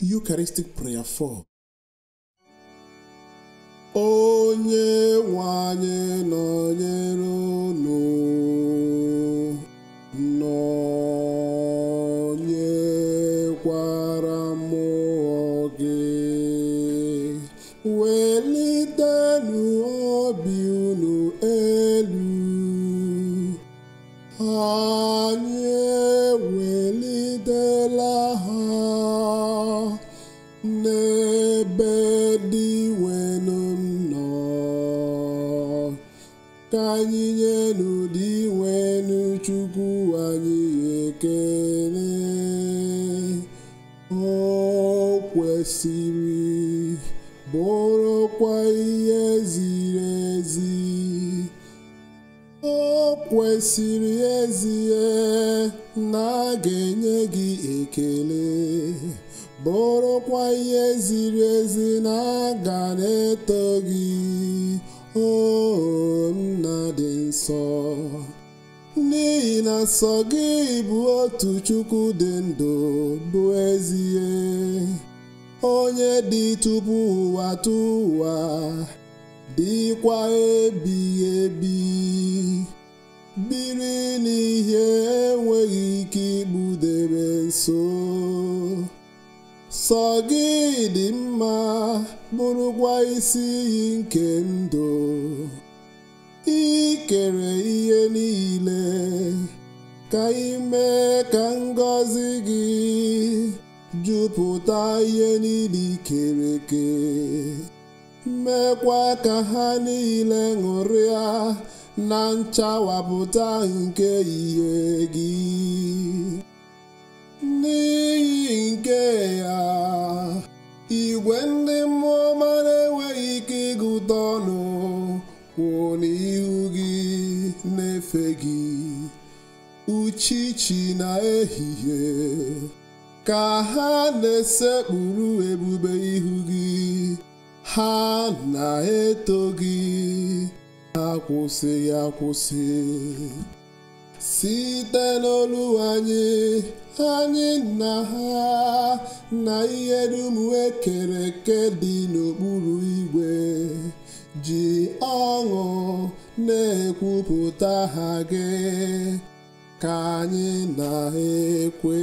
Eucharistic prayer for onye nwe anyị nọnyere unu nwelu nnọọ ka anyị nye dị nwelu chukwu anyị ekele ọ kwesịrị bụrụkwa ihe ziri ezi o kwesịrị ezie na a ga-enye gị ekele bụrụkwa ihe ziri ezi na-aga na-eto gị o nna dị nsọ n'ihi na nsọ gị bụ otu Chukwu dị ndụ bụ ezie onye dị tupu ụwa tụ ụwa dịkwa ebighị ebi biri n'ihe enweghị ike igbudebe nso sọ gị dị mma bụrụkwa isi iyi nke ndụ ikere ihe niile ka ime ka ngọzi gị jupụta ihe niile ikere eke mekwa ka ha niile ṅụrịa na nchawapụta nke ihe gị N'iyi nke ya igwe ndị mmụọ ọma na-enweghị ike ịgụta ọnụ kwụ ihu gị na-efe gị uchichi na ehihie ka ha na-esekpuru ebube ihu gị ha na-eto gị akwụsịghị akwụsị site n'olu anyị anyị na ha na ihe dum ekere eke dị n'okpuru igwe ji ọṅụ na-ekwupụta ha gị ka anyị na-ekwe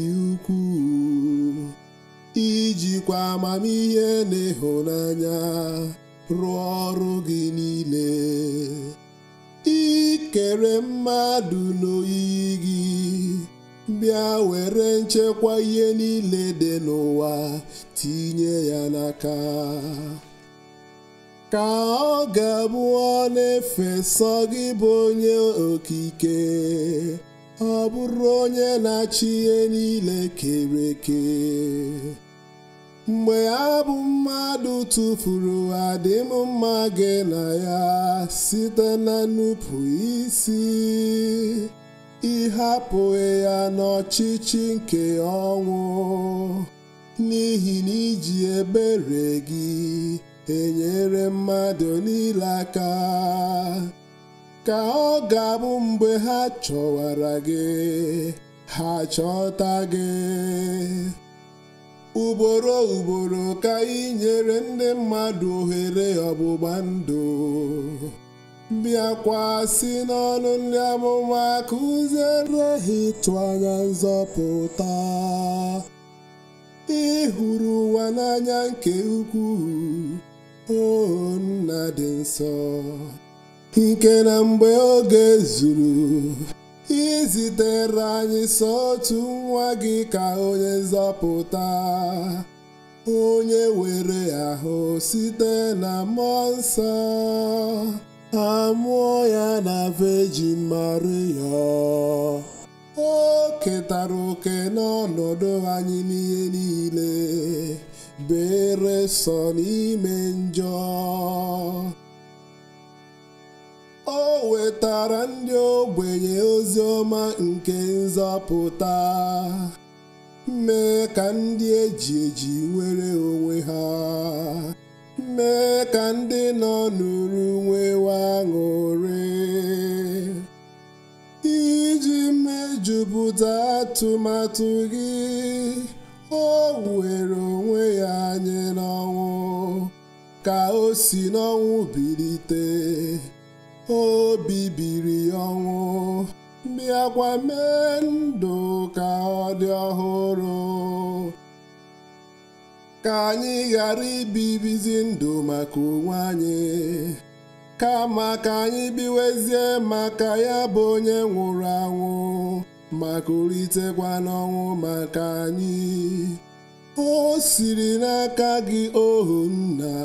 jikwa amamihe na ịhụnanya rụọ ọrụ gị niile ikere mmadụ n'oyiyi gị bịa were nchekwa ihe niile dị n'ụwa tinye ya n'aka ka ọ ga-abụ na-efesọ gị bụ onye okike ọ bụrụ onye na-achị ihe niile kere eke mgbe ha bụ mmadụ tụfuru adịm mma gị na ya site na nnupụ isi ịhapụghị ya n'ọchịchị nke ọnwụ n'ihi na iji ebere gị enyere mmadụ niile aka ka ọ ga-abụ mgbe ha chọwara gị ha chọta gị ugboro ugboro ka ị nyere ndị mmadụ ohere ọgbụgba ndụ bịakwa si n'ọnụ ndị amụma kụziere ha ịtụ anya nzọpụta ị hụrụ ụwa n'anya nke ukwuu o nna dị nsọ nke na mgbe oge zuru zitere anyị sọ otu nwa gị ka onye nzọpụta onye were ahụ site na mmụọ nsọ amụọ ya na vejin maria o ketara oke n'ọnọdụ anyị n'ihe niile bere sọ n'ime njọ O wetara ndị ogbenye ozi ọma nke nzọpụta mee ka ndị eji eji nwere onwe ha mee ka ndị nọ n'uru nwewa iji mejupụta atụmatụ gị o were onwe ya anyị n'ọnwụ ka o si n'ọnwụ bilite o bibiri ọnwụ bịakwa mee ndụ ka ọ dị ọhụrụ ka anyị ghara ibibizi ndụ maka onwe anyị kama ka anyị biwezie maka ya bụ onye nwụrụ anwụ maka olitekwa n'ọnwụ maka anyị o siri n'aka gị ohu nna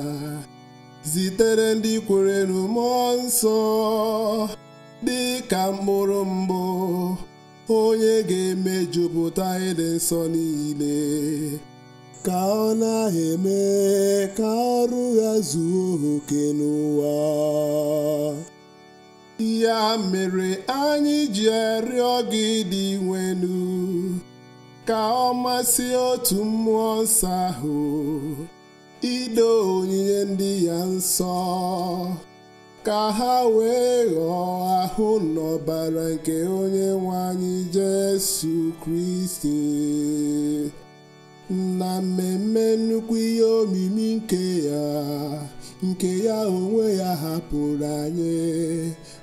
zitere ndị kwerenu mmụọ nsọ dị ka mkpụrụ mbụ onye ga-emejupụta ịdị nsọ niile ka ọ na-eme ka ọrụ ya zuo oke n'ụwa ya mere anyị ji arịọ gị dị nwenu ka ọ masị otu mmụọ nsọ ahụ ido onyinye ndị ya nsọ ka ha wee ghọọ ahụ n'ọbara nke onye nwe anyị Jesu Kristi na mmemme nnukwu ihe omimi nke ya nke ya onwe ya hapụrụ anyị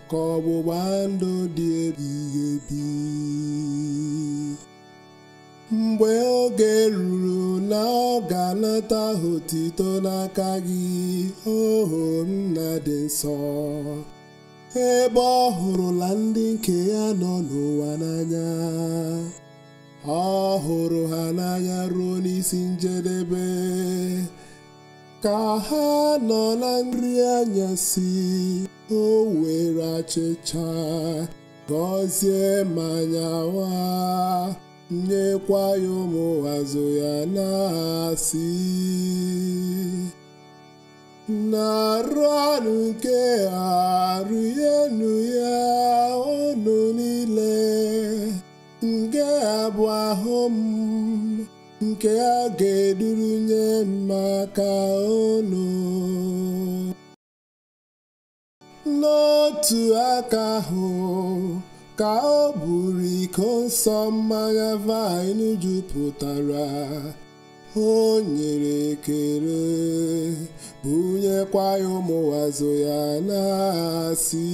ka ọgbụgba ndụ dị ebighị ebi mgbe oge ruru na ọ ga-anata otito n'aka gị oho nna dị nsọ ebe ọ hụrụla ndị nke ya nọ n'ụwa n'anya ọ hụrụ ha n'anya ruo n'isi njedebe ka ha nọ na nri anyasị o were achịcha gọzie ma nyawa nyekwa ya ụmụ azụ ya na-asị na-arụ anụ nke arụ enu ya unu niile nke abụ ahụ nke a ga-eduru nye maka unu n'otu aka ahụ ka ọ bụrụ iko nsọ mmanya vaịn jupụtara o nyere ekele bunyekwa ya ụmụazụ ya na-asị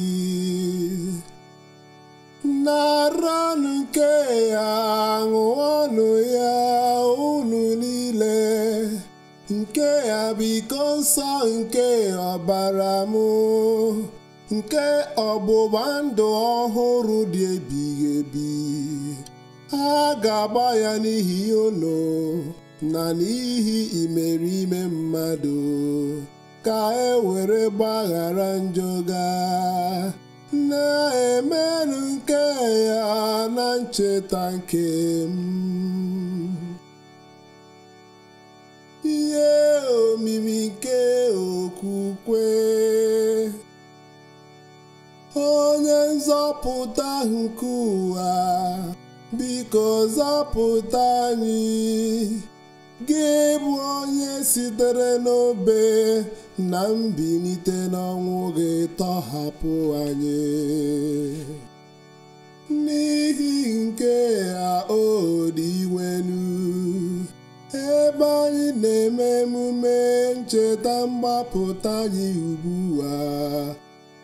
naranụ nke ya ṅụọnụ ya unu niile nke ya bụ iko nsọ nke ọbara m nke ọgbụgba ndụ ọhụrụ dị ebighị ebi a ga-agba ya n'ihi ụlọ na n'ihi imerime mmadụ ka e were gbaghara njọ ga na-emerụ nke ya na ncheta nke m ihe omimi nke okwukwe onye nzọpụta nke ụwa biko zọpụta anyị gị bụ onye sitere n'obe na mbilite n'ọnwụ gị tọhapụ anyị n'ihi nke a o iwenu, ebe anyị na-eme emume ncheta mgbapụta anyị ugbu a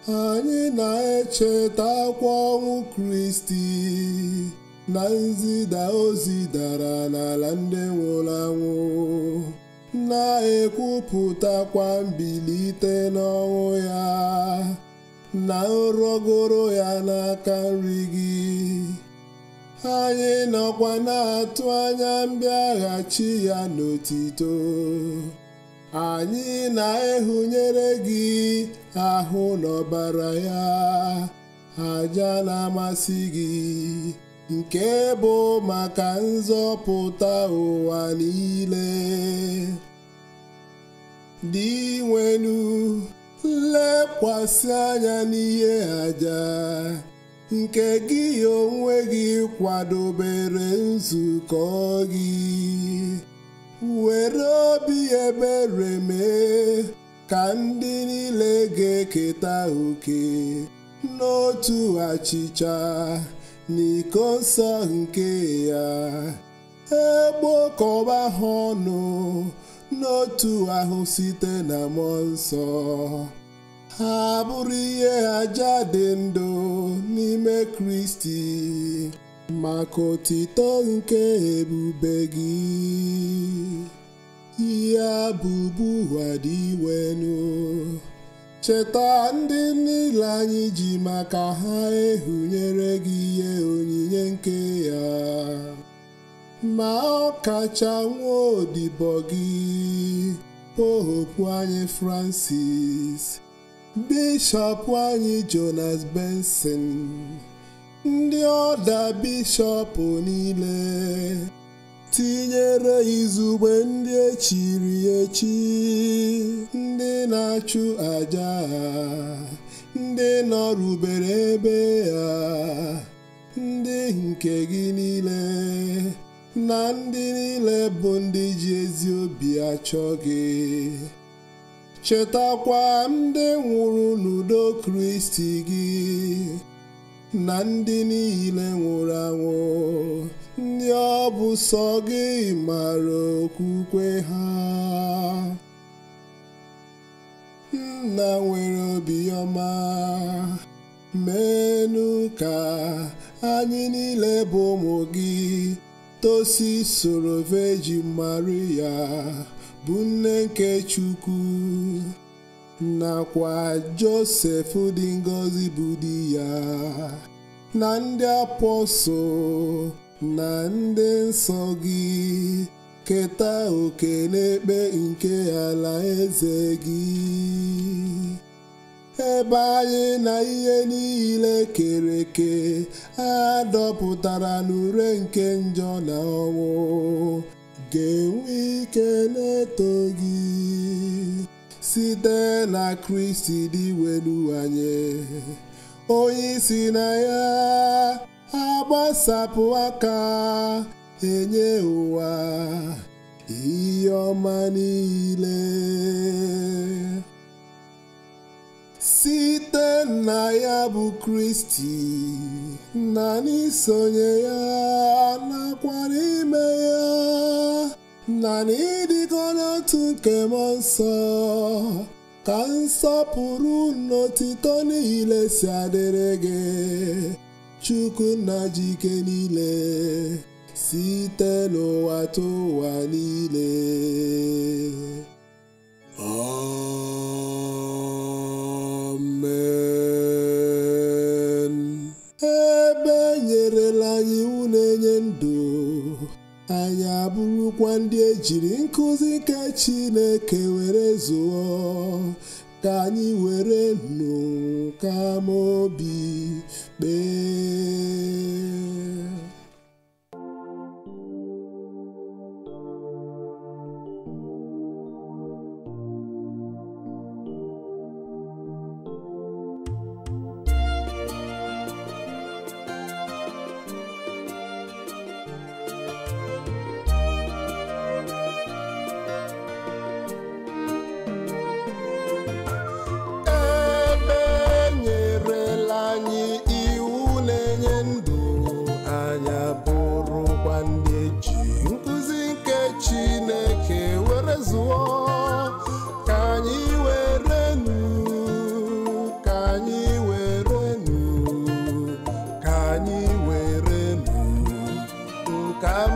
anyị na echeta akwa ọnwụ Kristi na nzida ozi dara n'ala ndị nwụrụ anwụ na-ekwupụtakwa mbilite n'ọnwụ ya na nrọgoro ya n'aka nri gị anyị nọkwa na-atụ anya mbịaghachi ya n'otito anyị na-ehunyere gị ahụ n'ọbara ya aja na-amasị gị nke bụ maka nzọpụta ụwa niile dị nwenu lekwasị anya n'ihe aja nke gị onwe gị kwadobere nzukọ gị were obi ebere mee ka ndị niile ga-eketa oke n'otu achịcha n'iko nsọ nke ya egbokọba ha ọnụ n'otu ahụ site na mmụọ nsọ ha bụrụ ihe aja dị ndụ n'ime Kristi maka otito nke ebube gị ihe abụbu ụwa dị cheta ndị niile anyị ji maka ha ehunyere gị ihe onyinye nke ya ma ọ kacha nwa odibo gị pohopu anyị Francis Bishop anyị Jonas Benson ndị ọda bishọp niile tinyere izugbe ndị echiri echi ndị na-achụ aja ndị nọrubere ebe ya ndị nke gị niile na ndị niile bụ ndị ji ezi obi achọ gị chetakwa ndị nwụrụ n'udo Kristi gị na ndị niile nwụrụ anwụ ndị ọ bụ sọ gị mara okwukwe ha nna nwere obiọma menu ka anyị niile bụ ụmụ gị tosi soro Virgin Maria bụ nne nke Chukwu nakwa Josef dị ngọzi bụ di ya na ndị apọstụl na ndị nsọ gị keta oke n'ekpe nke eze gị ebe anyị na ihe niile kere eke a dọpụtara n'ure nke njọ na ọnwụ ga-enwe ike na-eto gị site na kristi dị welu anyị onye isi na ya agbasapụ aka enye ụwa ihe ọma niile site na ya bụ kristi na n'isonye ya nakwara ime ya na n'ịdịkọ n'otu nke mmụọ nsọ ka nsọpụrụ n'otito niile si adịrị gị Chukwu na jike niile site n'ụwa tụwa niile amen ebe enyerela anyị iwu na-enye ndụ anyị abụrụkwa ndị jiri nkụzi nke Chineke Come